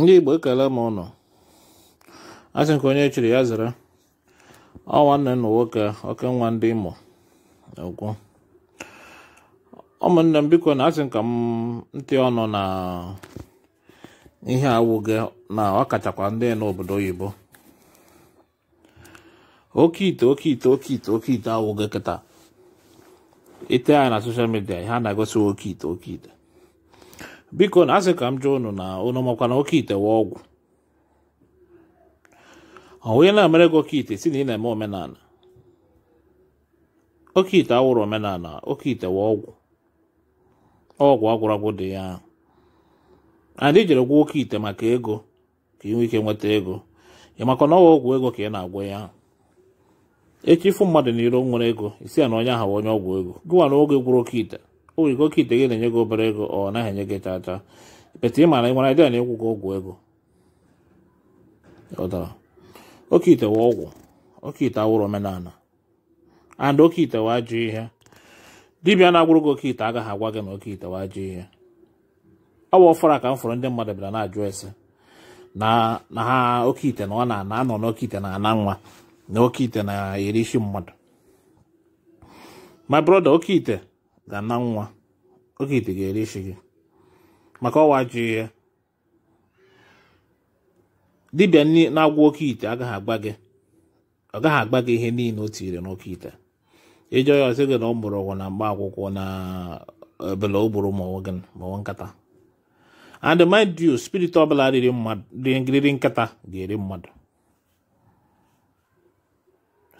ndị igbo ekele m ụnụ asị ka onye chiri ya zere ọ nwanne nna nwoke oke nwa ndị imo ugwu ụmụnne m biko na asị nka m ntị ọnụ na ihe awụghị na ọkachakwa ndị n'obodo oyibo oke ite oke ite oke ite oke ite awụghị kịta ite ya na soshal midia a na-egosi oke ite oke ite biko na asị ka m jụọ unu na unu makwa na oke ite wa ọgwụ onye na-emere gị oke ite si na ị na-eme omenala oke ite awụrụ omenala oke ite wa ọgwụ ọgwụ agwụragwụ dị ya anyị jere gwọ oke ite maka ego ka ị nwee ike nweta ego ị maka na ọwa ọgwụ ego ka ị na agwụ ya echi ịfụ mmadụ n'iro nwere ego isi ya na onye ahụ onye ọgwụ ego gịwa na oge gwụrụ oke ite o nwere oke ite gị na-enye gị obere ego ọ naghị enye gị tata bete ị mara ịmara ịdị na-ekwu gị ọgwụ ego ọdara oke ite wa ọgwụ oke ite awụrụ omenala and oke ite wa ajụ ihe dibịa na-agwụrụ gị oke ite agaghị agwa gị na oke ite wa ajụ ihe ọ bụ ọfọrọ ka m fọrọ ndị mmadụ bịara na-ajụ ese na ha oke ite na ọ na-ana anọ n'oke ite na-ana nwa na oke ite na-eri isi mmadụ my brother oke ite ga nwa oge ite ga-ere isi gị maka ọwa ji ihe dibịa na-agwa oke ite agaghị agba gị ọ gaghị agba gị ihe niile o tinyere n'oke ite ịjọ ya ọsị gị na ọ mụrụ ọgwụ na mgba akwụkwọ na ebele eh, o gburu ma ọnwa nkata and mind you spirit ọbụla riri nkata ga-eri mmadụ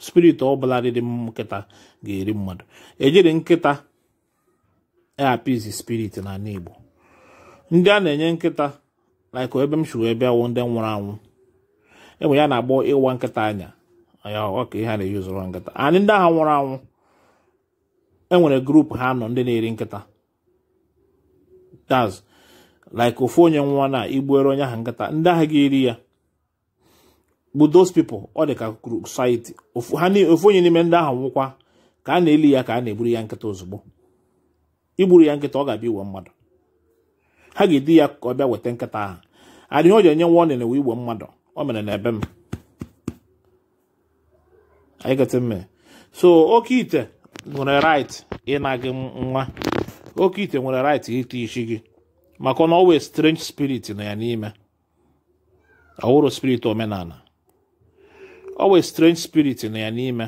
spirit ọbụla riri nkịta ga-eri mmadụ ejiri nkịta apiz spirit na ndị a na-enye nkịta like ebe m shuru ebe awụ ndị nwụrụ anwụ enwe ya na-agbọ ịwa nkịta anya ọka ihe a na ụzọrọ nkịta anyị ndị ahụ nwụrụ anwụ enwere grupu ha nọ ndị na-eri nkịta taz like ofu onye nwa na igbuere onye ahụ nkịta ndị ahụ ga-eri ya bụ those people ọ dị ka society ofu onye n'ime ndị ahụ nwụkwa ka a na-eli ya ka a na-eburu ya nkịta ozugbo igburu ya nkịta ọ ga-abịa iwe mmadụ ha ga-edi ya ka ọ bịa weta nkịta ahụ adịghị o ji enye nwa ọ na-ewe igwe mmadụ o mere na-ebe m so oke ite nwere right ịna gị nwa oke ite nwere right ite isi gị maka na ọwee strange spirit nọ ya n'ime ọwụrụ spirit omenala ọwee strange spirit nọ ya n'ime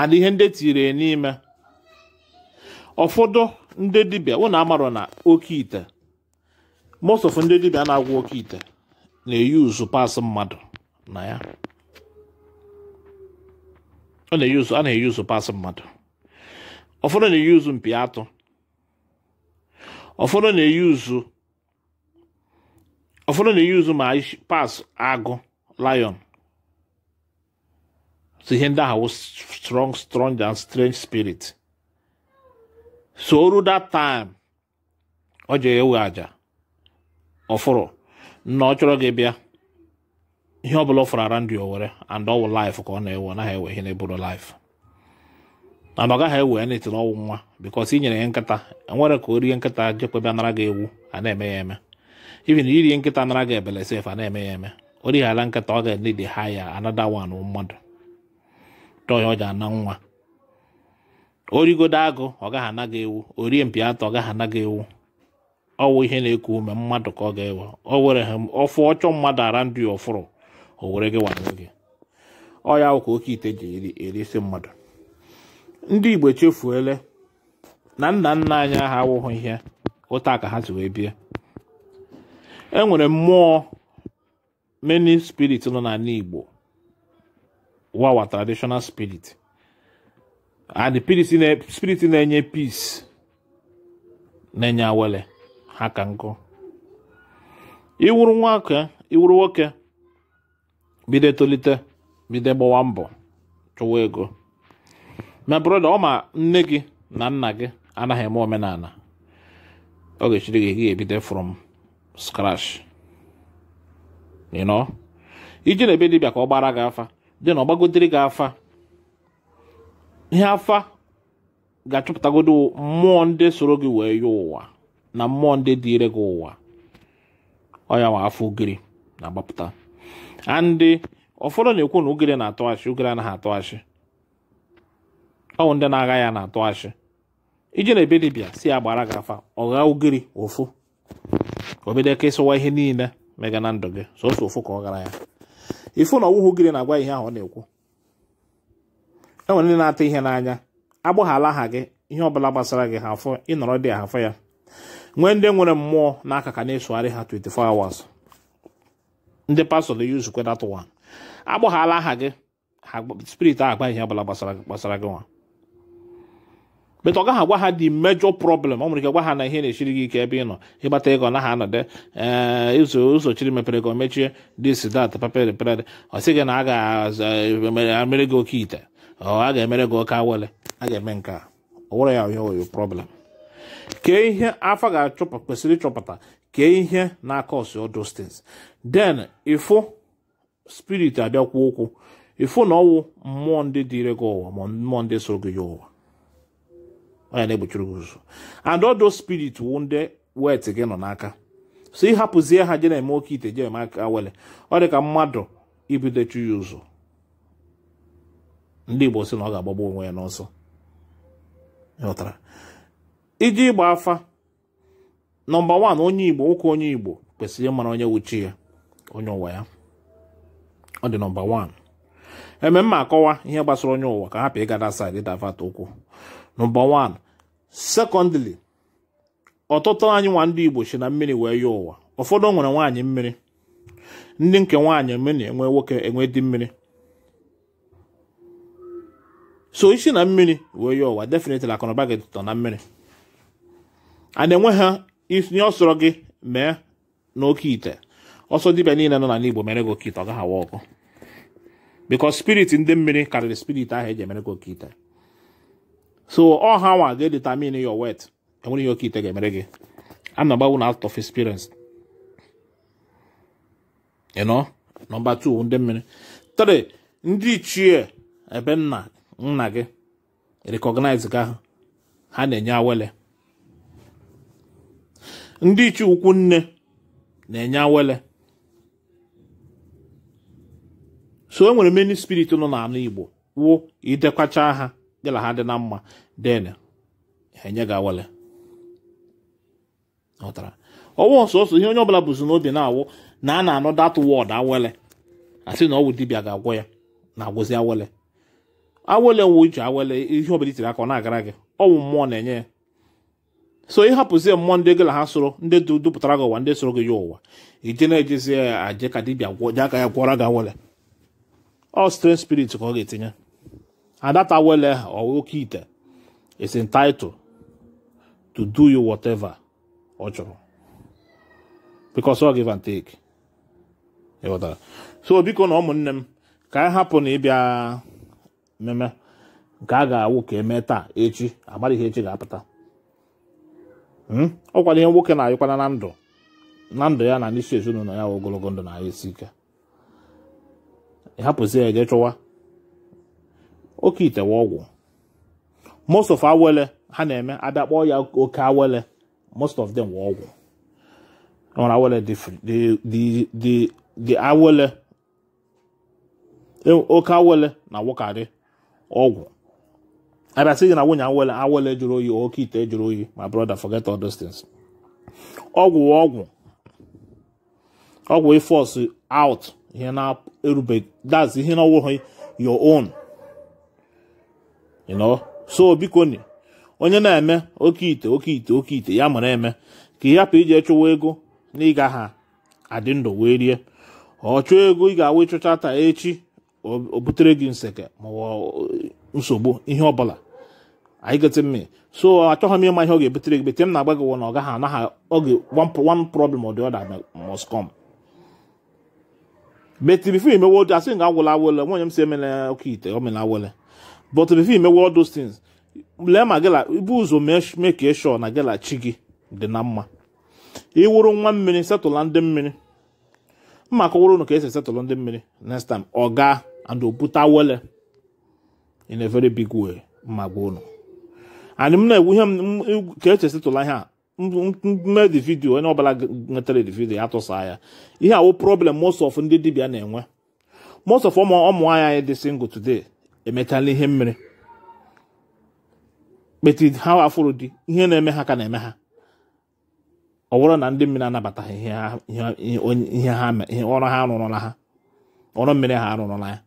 and ihe ndị e tiri n'ime ụfọdụ ndị dibịa ụnụ amarọ na oke ite most of ndị dibịa na-agwọ oke ite na eyi uzu pas mmadụ na ya a na uzu pas mmadụ ụfọdụ na eyi uzu mpi atụ ụfọdụ na-eyuzu ụfọdụ na-eyuzu ma pas agụ lion so ihe ndị ahụ strong strong and strange spirit so oru that time ọ jee ewe aja ọfụrụ na ọ chọrọ gị bịa ihe ọ bụla ọ fụrụ ara ndị owere and ọ wụ life ka ọ na-ewe naghị ewe ihe na-eburu life na ọ gaghị ewe ya n'etiri ọnwụ nwa because i nyere ya nkịta enwere ka o rie nkịta jekwebe nara gị ewu a na-eme ya eme even iri nkịta nara gị ebele sef a na-eme ya eme o righala nkịta ọ ga-enedi ha ya anada wan mmadụ dọya ọ ji ana nwa origodo agụ ọ gaghị anaghị ewu orie mpi atọ ọ gaghị anaghị ewu ọwụ ihe na-eku ume mmadụ ka ọ ga-ewe ọ were ha ọfụ ọchọ mmadụ ara ndụ ọfụrụ o were gị wanye gị ọ ya ka oke ite ji erisi mmadụ ndị igbo chefuele na nna nna anyị ahụ awụghị ihe ụta ka ha si wee bie e nwere mmụọ many spirit nọ n'ala igbo wawa traditional spirit and spirit na-enye peace na-enye awele ha ka nkụ iwuru nwoke iwuru nwoke bido etolite bido gbawa mbọ chụwa ego ma broda ọ ma nne gị na nna gị anaghị eme omenala ọ ga-echiri gị gị ebido from scratch iji na ebe dibịa ka ọ gbara gị afa dị na ọ gbagotere gị afa ihe afa ga-achọpụtagodo mmụọ ndị soro gị wee yọọ ụwa na mmụọ ndị dịire gị ụwa ọya nwa afọ ugiri na-agbapụta andị ụfọdụ na-ekwu na ugiri na-atọ achị ugiri anaghị atọ achị ọwụ ndị na-agha ya na-atọ iji na-ebe dibịa si agbara gị afa ọgha ugiri ofu obedeke ịsụwa ihe niile mega na ndụ gị sọsọ ofu ka ọ gara ya ifu na ọwụhụ ugiri na-agwa ihe ahụ ọ na-ekwu enwere ndị na-ata ihe n'anya agbaghala aha gị ihe ọbụla gbasara gị ha afọ ịnọrọ dị ahafọ ya nwee ndị nwere mmụọ n'aka ka na-esogharị ha 24 hours ndị pastọ na yuzukwe that one agbaghala aha gị spirit ahụ agba ihe ọbụla gbasara gị nwa bet ọ gaghị agwa ha dị mejọ prọblem ọ nwere ike gwa ha na ihe na echiri gị ike ebe ị nọ ịgbata ego ha anọde eh, ụzọ chiri mepere ego mechie dis dat papere pere ọ sị gị na a ga-emere eh, gị oke ite a ga-emere gị oke awele a ga-eme nke a ọ were ya onye problem kee ihe afọ ga-achọpụta kwesịrị ịchọpụta kee ihe na-aka ọsụ distance then ịfụ spirit abịakwa okwu ifu na ọwụ mmụọ ndị dịire gị ụwa ma mmụọ ndị so gị ya ụwa onye na-egbochiri gị ụzọ and ọdụ spirit wụ ndị wet gị nọ n'aka so ịhapụzie ha je na-eme oke ite je eme aka wele ọ dị ka mmadụ ibido chụ ya ụzọ ndị Igbo sị na ọ ga-agbagbu onwe ya n'ọsọ ịghọtara iji ịgba afa nọmba wan onye Igbo nwoke onye Igbo kwesịrị ịmara onye wuchi ya onye ụwa ya ọ dị nọmba wan eme mma akọwa ihe gbasara onye ụwa ka hapụ ịgada saịdị davata ụkwụ nọmba wan sekọndịrị ọtụtụ anyị nwa ndị Igbo si na mmiri wee ya ụwa ụfọdụ nwere nwaanyị mmiri ndị nke nwaanyị mmiri enwe nwoke enwe di mmiri so isi na mmiri wee ya ụwa definitely akụnụba gị tụtọ na mmiri a na-enwe ha itinye ọsọrọ gị mee n'oke ite ọsọ dibịa niile nọ n'ala Igbo mere gị oke ite ọ gaghị awa ọkụ because spirit ndị mmiri karịrị spirit ahụ eji emere gị oke ite so ọ ha nwa ga-edetamin your wet enwere ihe oke ite ga-emere gị anọgbawu na out of experience ịnọ nọmba number two ndị mmiri three ndị ichie ebe nna nna gị recognize gị ahụ ha na-enye awele ndị iche ukwu nne na-enye awele so e nwere menu spirit nọ n'ala Igbo wụ idekwacha ha dịla ha dị na mma den enye gị awele ọwụ sọsọ ihe onye ọbụla bụzi n'obi na-awụ na a na-anọ dat wọd awele asị na ọ wụ dibịa ga-agwọ ya na-agwụzi awele awele nwe uche awele ihe ọbụla itiri aka ọ na-agara gị ọwụ mmụọ na-enye ya so ịhapụzie mmụọ ndị gị na ha soro ndị dupụtara gị ụwa ndị soro gị ya ụwa ije na-ejezie eh, ya aje ka dibịa ji aka ya gwọra gị awele ọ strange spirit ka ọ ga-etinye adata awele oke ite is entitled to do you whatever ọ chọrọ because ọ give and take so biko na ụmụnne m ka anyị hapụ na ịbịa mmemme nke a ga-awụ ka emee taa echi amaghị ihe echi ga-apụta hmm? ọkwado ihe nwoke na-ayịkwana na ndụ na ndụ ya na n'isi ezinụlọ ya ogologo ndụ na esi ike hapụzi ya eje chụwa oke itewe ọgwụ most of awele ha na-eme abịa ya oke awele most of them were ọgwụ nwere awele dị awele e, oke awele na-awụkarị ọgwụ abịasị gị na nwunye ọgwụ ọgwụ ọgwụ ịfọs out ihe na-erubeghị that's ihe na ọwụghị your own so biko ni onye na-eme oke ite oke ite oke ite ya mere eme ka ị hapụ iji chụwa ego na ịga ha adị ndụ wee rie ọ chụọ ego ị ga-awụ ịchụcha taa echi o butere gị nseke maọwa nsogbu ihe ọbụla anyị gote mme so achọghị m ịma ihe ọ ga-ebutere gị bete m na-agba gị na ọ gaghị anaghị oge one problem ọ or the other must come beti imewo imewe asị ga agwụla awele nwanyị m si emela oke ite o mela awele but before imewe all those things lee ma gịla ibu ụzọ mee ka ịshọ na gịla chi gị dị na mma ịwụrụ nwa mmiri setụla ndị mmiri mma akọwụrụ ụnụ ka esi esetụlụ ndị mmiri next time ọ gaa and obutawele in a very big way magbono and m na-egwu ihe m ka echesịtụla ihe a mme dị vidio onye ọbụla nwetara dị vidio ya tụsa ihe awu problem most of ndị dibia na-enwe most of ọmụ anya anyị dị single today emechala ihe mmiri kpeti ha afụrụ di ihe na-eme ha ka na-eme ha ọ bụrụ na ndị mmiri anabataghị ihe ọrụ ha ha ọrụ mmiri ha arụrụla ya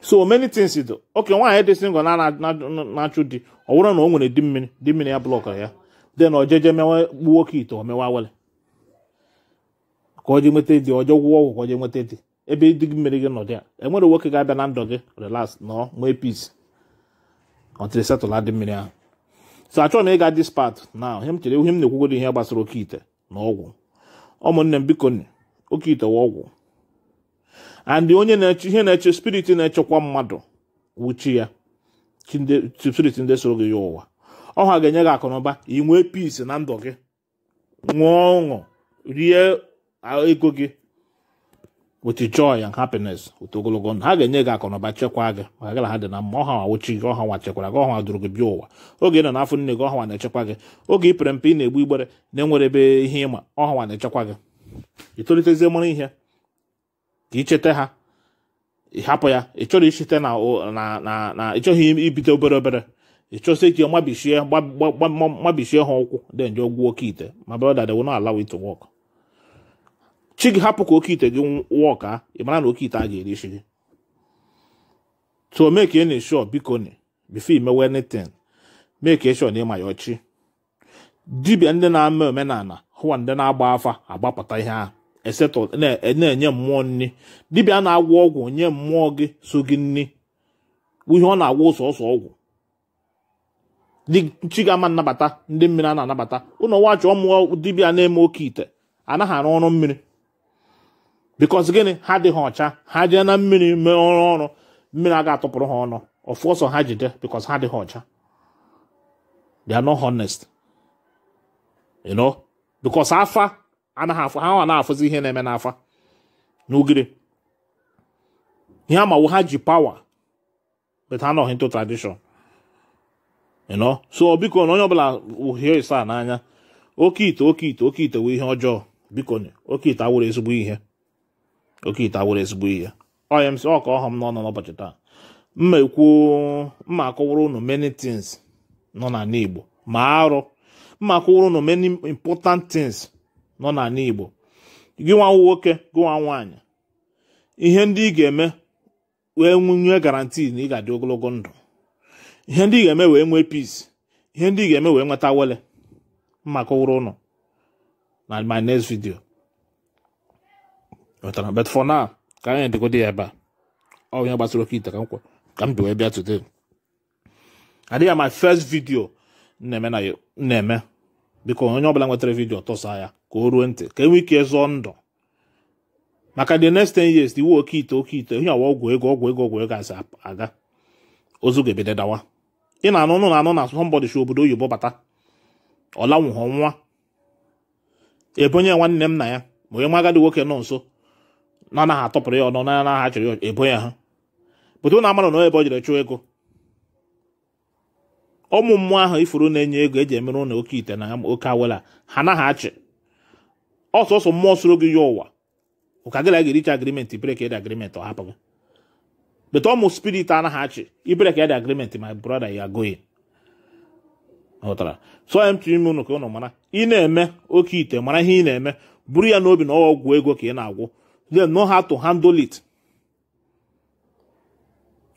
so many things do oke nwaanyị dị single na-achụ di ọ bụrụ na o nwere di mmiri di mmiri ya blọkara ya den ọ mewe gbuo oke ite o mewa ka ọ ji nweta di ọjọ gwụọ ọgwụ ka ọ nweta di ebe di mmiri gị nọdụ ya enwere nwoke ga-abịa na ndụ gị relax nọ nwee peace ọtịrị e setụla dị mmiri ahụ so achọrọ na ịga this part na ihe m chere ihe m na-ekwugodo ihe gbasara oke ite na ọgwụ ụmụnne m biko oke ite wa ọgwụ and onye na-eche ihe na-eche spirit na-echekwa mmadụ wuchi ya spirit ndị soro gị ya ụwa ọha ga-enye gị akụnụba inwe nwee peace na ndụ gị ṅụọ ọṅụ rie ego gị with joy and happiness otu ogologo ndụ ha ga-enye gị akụnụba chekwaa gị maka gị na ha dị na mma ọha nwa wuchi gị ọha nwa chekwara gị ọha nwa duru gị bi ụwa oge ị nọ n'afọ nne gị ọha na-echekwa gị oge ị pere mpe ị na-egbu igbere na-enwere ebe ihe ịma ọha nwa na-echekwa gị ị mara ihe ka icheta ha hapụ ya ị chọrọ icheta na na ịchọghị ibite obere obere ịchọsị ka mabishie mabishie ha ụkwụ denje nje ọgwụ oke ite ma brọda de wona allow it to work chi gị hapụ ka oke ite gị wọk a ị mara na oke ite a ga-erichi gị so mee ka ị na-esho biko ni bifo imewe mee ka na ịma ya ọchị dibia ndị na-ama omenala hụwa ndị na-agba afa agbapụta ihe ahụ esetọ na-enye mmụọ nri dibịa na-agwọ ọgwụ nye mmụọ gị so gị nri ihe ọ na-agwọ sọsọ ọgwụ chi ga-ama nnabata ndị mmiri a na-anabata ụlọ nwa chọọ mmụọ dibịa na-eme oke ite anaghị arụ ọrụ mmiri bikọs gịnị ha dịghị ọcha ha jee na mmiri mee ọrụ ọrụ mmiri a ga-atụpụrụ ha ọnụ ọfụ ha jide bikọs ha adịghị ọcha honest you know afa anaghị afụ ha na-afụzi ihe na-eme n'afa n'ugiri ihe amawo ha ji pawa but ha nọghị ntụ tradishọn ịnọ so biko na onye ọbụla uhie ịsa n'anya oke ite oke ite oke ite wee ihe ọjọọ biko oke ite awụrụ ezigbo ihe oke ite awụrụ ezigbo ihe ọya m si ọka ọhọm n'ọnọ n'ụbọchị taa mma ekwuo mma akọwara unu many things nọ n'ala Igbo ma arụ mma akọwara unu many important things nọ n'ala Igbo gị nwa nwoke gị nwa nwaanyị ihe ndị ị ga-eme wee nwunye garanti na ị ga-adị ogologo ndụ ihe ndị ị ga-eme wee nwee peace ihe ndị ị ga-eme wee nweta wele maka ụrụ ụnụ na my next video wetara but for now ka anyị dịgodị ya ebe a ọ onye gbasara oke ite ka m kwa ka m bi wee bịa today adịghị my first video na-eme na na-eme biko onye ọ bụla nwetara vidio tọsa ya ka o ruo ntị ka e nwee ike zụọ ndụ maka the next ten years iwu oke ite oke ite ihe awa ọgwụ ego ọgwụ ego ọgwụ ego asị aga ozu ga-ebede dawa ị na-anụ nụ na-anụ na somebody obodo oyibo bata ọ nwa ebonye nwanne m na ya ma onye nwa agadi nwoke nọ nso na anaghị atọpụrụ ya ọnụ na anaghị achọrọ ya ebonye ha pụta ụna amara na ebe ọ jere chụọ ego ụmụ mmụọ ahụ ifuru na-enye ego eji emere ụlọ oke ite na oke awela ha anaghị achị ọsọsọ mmụọ soro gị ya ụwa ụka gị na gị richa agrimenti brek ed agrimenti ọ hapụghị bete ọmụ spirit anaghị achị ibrek ed agrimenti my brother ya goin ghọtara so m tiri ime unu ka unu mara ị na-eme oke ite mara ihe ị na-eme buru ya n'obi na ọgwụ ego ka ị na-agwụ then know how to handle it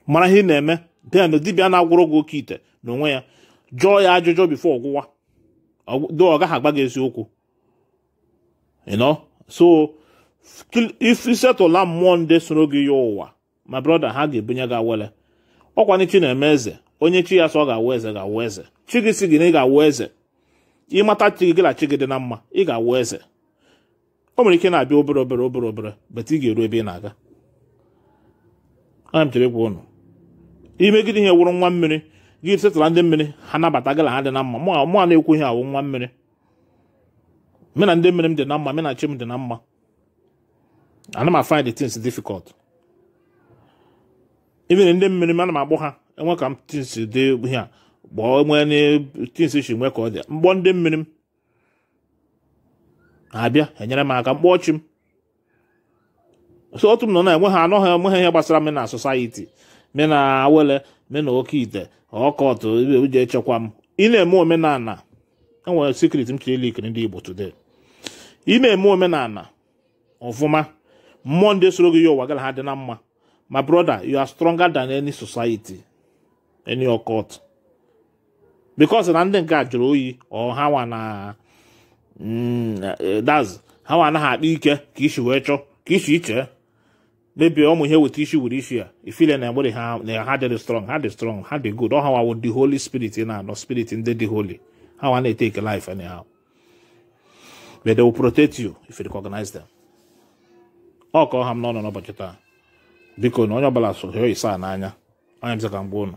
mara ihe ị na-eme then dibịa na-agwụrụ gị oke ite n'onwe ya jụọ ya ajụjụ bifo ọgwụwa do ọ gaghị agba gị eziokwu You know? So, if you settle Monday soro gị ya ụwa my brother ha ga-ebunye gị awele ọkwanye chi na-eme eze onye chi ya sọ ọ ga-awụ eze ga-awụ eze chi gị si gị na ị ga-awụ eze ịmata chi gị gịla chi gị dị na mma ị ga-awụ eze o nwere ike na-abịa obere obere obere obere bata ị ga-eru ebe ị na-aga ana m chere ihe wụrụ nwa mmiri gị ndị mmiri ha nabata ha dị na mma mụ na-ekwu ihe awụ nwa mmiri me na ndị mmiri m dị na mma me na chi m dị na mma ana m find the things difficult even ndị mmiri m ana m akpọ ha enwe ka m tins dị ihe a gbọọ nwee tins shi nwee ka ọ dị mgbọ ndị mmiri m abịa enyere m aka mkpọ chi m so otu m nọ na-enwe ha anọghị enwe ha ihe gbasara m na society me na awele me na oke ite ọkọtụ ebe echekwa m ị na-eme omenala enwere secret m chiri ikiri ndị Igbo today ime na-eme omenala ọfụma mmụọ ndị soro gị ya ụwa gara ha dị na mma ma broda you are stronger than any society any occult because na ndị nke a jụrụ oyi ọ ha nwa na mm, eh, daz ha nwa anaghị akpa ike ka isi wee chọọ ka isi iche mebie ụmụ ihe weta isi were isi ya ifile na egbere ha na ha dị strong ha dị strong ha dị good ọ ha nwa wo the holy spirit na anọ spirit ndị dị holy ha nwa na-ete ike life anyhow but they will protect you if you recognize them ọ kọọ ha m n'ọnụ n'ụbọchị taa biko na onye ọbụla so hịọ isa n'anya onye m ka mgbe ụnụ